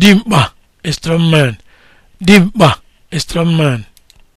dimkpa strongman dimkpa strongman